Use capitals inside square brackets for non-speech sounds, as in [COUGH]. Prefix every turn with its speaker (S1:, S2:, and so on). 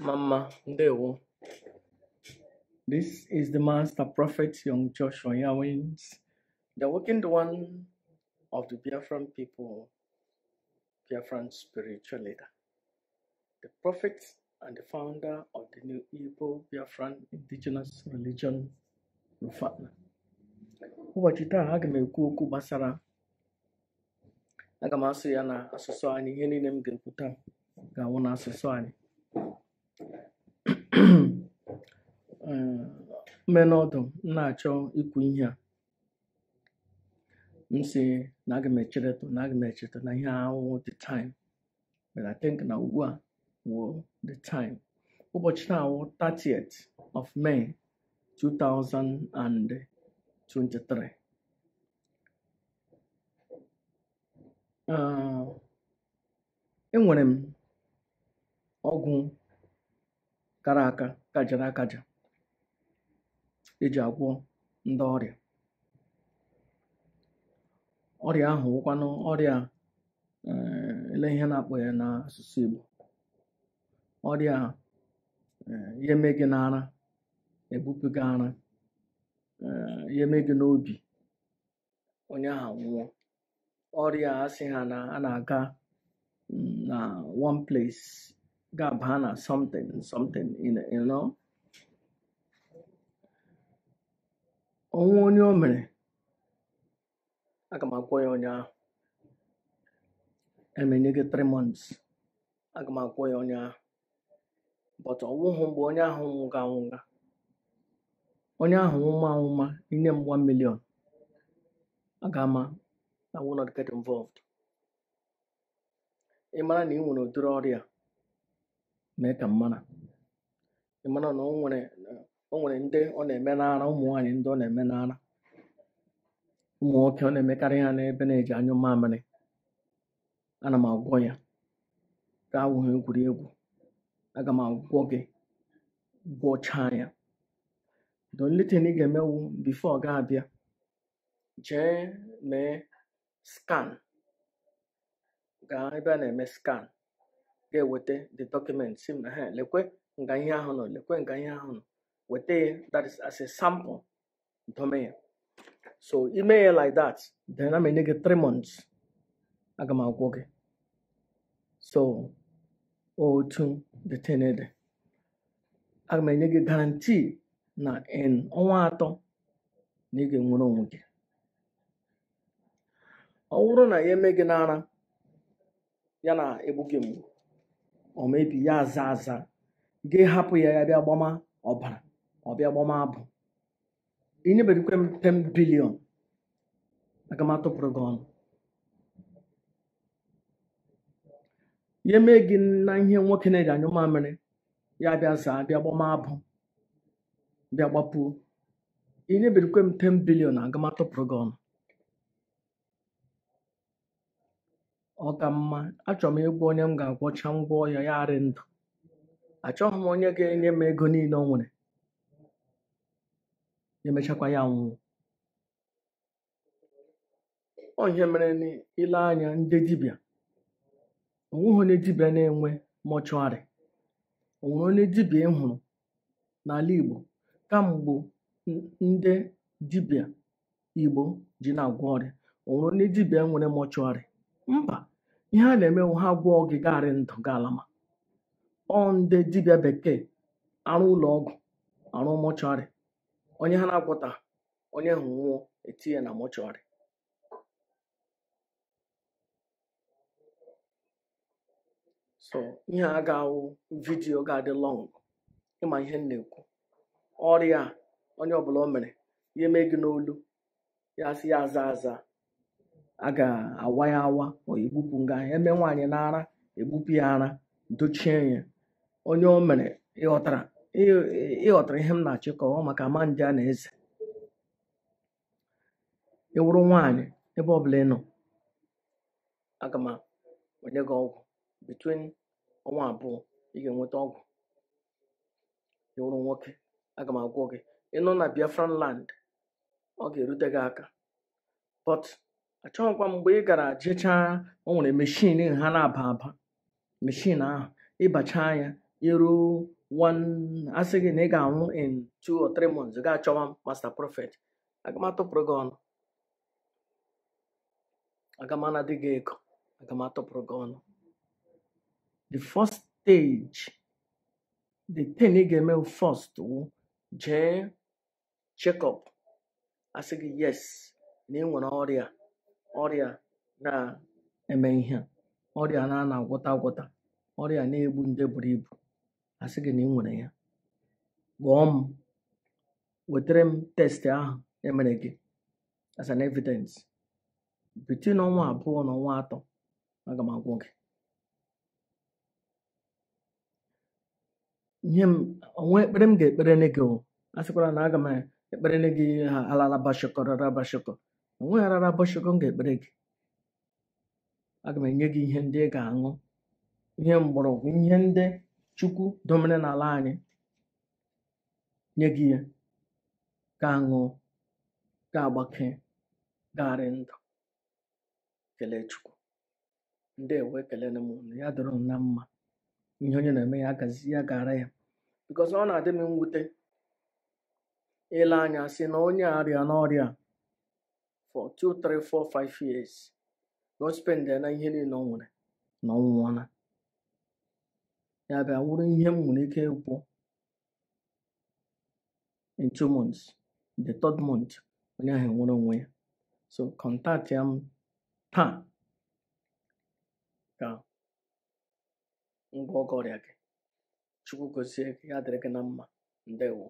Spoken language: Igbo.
S1: Mama, ndewo. This is the master prophet, young Joshua Yawins, the wicked one of the Biafran people, Biafran spiritual leader, the prophet and the founder of the new Igbo Biafran indigenous religion, Rufana. Ụbọchị taa, aga m ekwu okwu gbasara aga m asụ ya na asụsụ anyị ihe [COUGHS] mmenụ ọdụ m na-achọ ikwu ihe a m si na aga m echereto na aga m echeta na ihe the time but I think na ugbu a wo the time ụbọchị na awụ 30th of May 2023 enwere m ọgwụ kara aka kajara akaja eji agwọ ndị ọrịa ọrịa ahụ wụkwanụ ọrịa eh, ele ihe na-akpọ ya n'asụsụ Igbo ọrịa eh, ihe mee gị n'ara ebupụ gị ara eh, ihe mee gị n'obi onye ahụ nwụọ ọrịa asị ha na a na-aga mm, na one place Gabbana, something, something, you know. ọnwụ onye o mere aga m akwụ ya ụnyaahụ emenye gị 3 months aga m akwụ ya ụnyaahụ but ọnwụhụ mgbe onye ahụ nwụga anwụga onye ahụ nwụma anwụma inye m one million aga ama I will not get involved ị mara na ị nwere udiri ọrịa mee ka m mara ị na o nwere o nwere ndị ọ na-eme n'ara ụmụ nwaanyị ndị ọ na-eme n'ara ụmụ nwoke ọ na-emekarị ha n'ebe na-eji anyụ mamịrị ana m agwọ ya gaa awụghị egwuregwu aga m agwọ gị gwọchaa ya the ị ga-emewu bifo ga-abịa jee mee skan gaa ebe a na-eme skan. ga-eweta the document si ha lekwe nga ihe ahụ nọ lekwe nga ihe ahụ nọ weta ya that is as a sample dome ya so ime ya like that then a enye gị 3 months aga m agwọ gị so otu detenede aga m enye gị guarantee na in ọnwa atọ na ị ga-enwere onwe gị ọ na ya eme gị n'ara ya na egbu gị mgbu ọ mebi ya aza aza gị hapụ ya ya bịa gbama ọbara ọ bịa gbama abụ inyeberikwe m 10 bilion aga m atụpụrụ gị ọnụ ya mee gị na ihe nwoke na-eri anyụ mamịrị ya bịa zaa bịa gbama abụ bịa gbapuo inyeberikwe m 10 bilion aga m atụpụrụ gị ọnụ ọ ka mma achọrọ m ịgwa onye m ga-agwọcha ngwa ọhịa ya arị ndụ achọghị m onye ga-enye m ego niile ọ nwere emechakwa ya nwụọ ọ ihe mere n'ile anya ndị dibịa onweghị onye dibịa na-enwe mọchụarị onwere onye dibịa ị n'ala Igbo kamgbe ndị dibịa Igbo ji na-agwọ ọrịa onwere onye dibịa nwere mọchụarị Mba, ihe a na emewu ha gwọọ gị garị ndụ galama ọ ndị dibịa bekee arụ ụlọ ọgwụ arụ mọchụarị onye ha na-agwọta onye ahụ nwụọ etinye na mọchụarị so ihe a ga-awụ vidiyo ga-adị lọng ịma ihe m na-ekwu ọrịa onye ọbụla o mere ya eme gị n'olu ya sị ya aza aza a ga-awa ya awa ma egbupụ nga eme nwaanyị na ara egbupụ ya ara dochie ya onye o mere ịghọtara ịghọtara ihe m na-achị ka ọ maka ama a na eze ịwụrụ nwaanyị ebe ọbụla bụla ịnọ aga m enye gị ọgwụ between ọnwa abụọ ị ga-enweta ọgwụ ịwụrụ nwoke aga m agwọ gị ịnọ na Biafran land ọ ga-erute gị aka but achọghịkwa mgbe ị gara jechaa o nwere meshin ha na-aba aba meshin ahụ ịbachaa ya iruo asị gị na ị ga-anwụ in two or three months ị ga-achọwa master prophet aga m gị ọnụ aga gị ego aga gị ọnụ the first stage the ten ị ga-eme first wụ jee check asị gị yes na ị nwere ọrịa ọrịa na-eme ihe ọrịa na ana agwọta agwọta ọrịa na-egbu nde buru ibu asị gị na ị nwere ya kpọọ m wetara m testị ahụ emere gị as an evidence bitin ọnwa abụọ na ọnwa atọ aga m agwọ gị ihe m onwe ekpere m ga-ekpere gị asịkwara na aga m ekpere gị ha alalabashakọ o nweghị arara bọchịgo m ga-ekpere gị aga m enye gị ihe ndị ị ga-aṅụ ihe mgbọrọgwụ ihe ndị chukwu domere n'ala anyị nye gị ya ga-aṅụ ga-agbake garị ndụ kelee chukwu ndị ewe kelere na ya dịrọ na mma ihe onye na-eme ya agazi ya gara ya bikọs ọ na-adị m mwute ile anya sị na onye arịa n'ọrịa for two three four five years na spend ya na ihe niile ọ nwere na ọ nwụọla ya bịa wụrụ ihe m nwere ike ịkwụ in two months the third month onye ahụ nwere onwe ya so contact ya m taa ka ngwa ọgọ ọrịa gị chukwu gozie ya dịrị gị na mma ndewo